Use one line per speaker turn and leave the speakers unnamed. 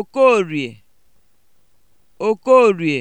Okoro e!